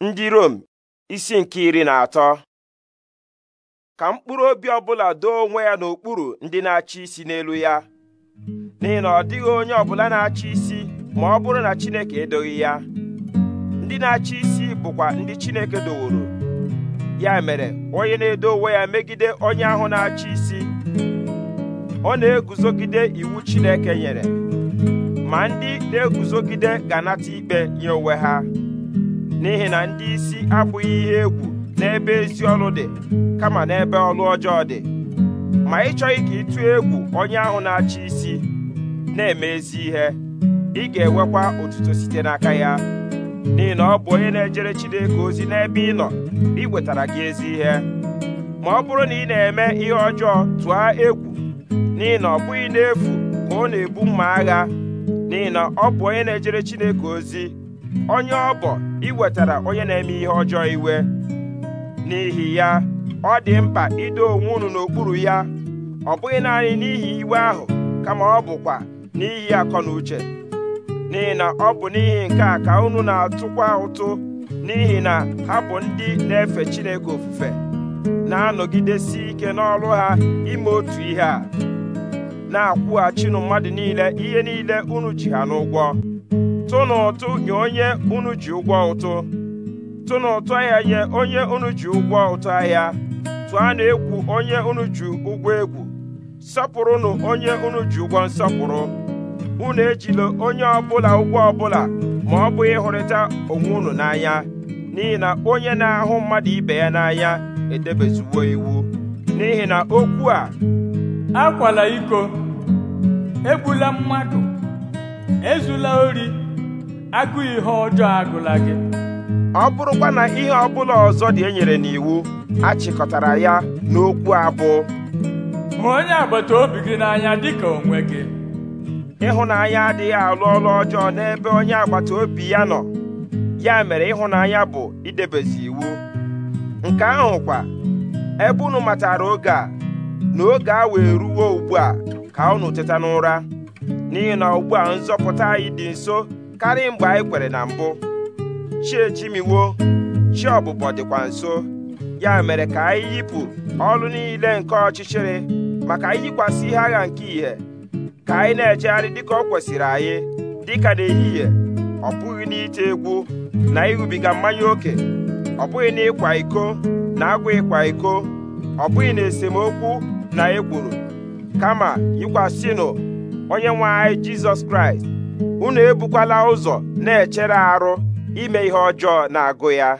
ndị Rom isi nke iri na atọ ka mkpụrụ obi ọbụla doo onwe ya n'okpuru ndị na-achị isi n'elu ya n'ihi na ọ dịghị onye ọbụla na-achị isi ma ọ bụrụ na Chineke edoghị ya ndị na-achị isi bụkwa ndị Chineke doworo ya mere onye na-edo onwe ya megide onye ahụ na-achị isi ọ na-eguzogide iwu Chineke nyere ma ndị na-eguzogide ga-anata ikpe nye onwe ha n'ihi na ndị isi abụghị ihe egwu n'ebe ezi ọrụ dị kama n'ebe ọrụ ọjọọ dị ma ị chọghị ka ịtụ egwu onye ahụ na-achị isi na-eme ezi ihe ị ga-enwekwa otuto site n'aka ya n'ihi na ọ bụ onye na-ejere Chineke ozi n'ebe ị nọ wetara gị ezi ihe ma ọ bụrụ na ị na-eme ihe ọjọọ tụọ egwu n'ihi na ọ bụghị n'efu ka ọ na-ebu mma agha n'ihi na ọ bụ onye na-ejere Chineke ozi onye ọ bụ iwetara onye na-eme ihe ọjọọ iwe n'ihi ya ọ dị mkpa ido onwe unu n'okpuru ya ọ bụghị naanị n'ihi iwe ahụ kama ọ bụkwa n'ihi akọ na uche n'ihi na ọ bụ n'ihi nke a ka unu na-atụkwa ụtụ n'ihi na ha bụ ndị na-efe Chineke ofufe na-anọgidesi ike n'ọrụ ha ime otu ihe a na-akwụghachinụ mmadụ niile ihe niile unu ji ha n'ụgwọ tụnụ nye onye unu ji ụgwọ ụtụ tụnụ ahịa nye onye unu ji ụgwọ ụtụ ahịa tụanụ egwu onye unu ji ụgwọ egwu sọpụrụnụ onye unu ji ụgwọ nsọpụrụ unu ejila onye ọbụla ụgwọ ọbụla ma ọ bụghị ịhụrịta onwe unu n'anya n'ihi na onye na-ahụ mmadụ ibe ya n'anya edebezuwo iwu n'ihi na okwu a akwala iko egbula mmadụ ezula ori agụ ihe ọjọọ agụla gị ọ bụrụkwa na ihe ọbụla ọzọ dị enyere n'iwu achịkọtara ya n'okwu abụọ ma onye agbata obi gị n'anya ka onwe gị ịhụnanya adịghị alụ ọrụ ọjọọ n'ebe onye agbata obi ya nọ ya mere ịhụnanya bụ idebezi iwu nke kwa ebe unu matara oge a na oge a wee ruwo ugbu a ka unu teta n'ụra n'ihi na ugbu a nzọpụta anyị dị nso karịa mgbe anyị kwere na mbụ chi ejimiwo chi ọbụbọ dịkwa nso ya mere ka anyị yipụ ọrụ niile nke ọchịchịrị maka anyị yikwasị ihe agha nke ìhè ka anyị na-ejegharị dịka o kwesịrị anyị dịka n'ehihie ọ bụghị n'ite egwu na ịrụbiga mmanya ókè ọ bụghị n'ịkwa iko na agwa ịkwa iko ọ bụghị na esemokwu na ekworo kama yikwasịnụ onye nwe anyị jizọs kraịst unu ebukwala ụzọ na-echere arụ ime ihe ọjọọ na-agụ ya